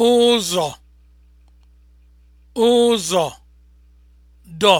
ụzọ ụzọ dọ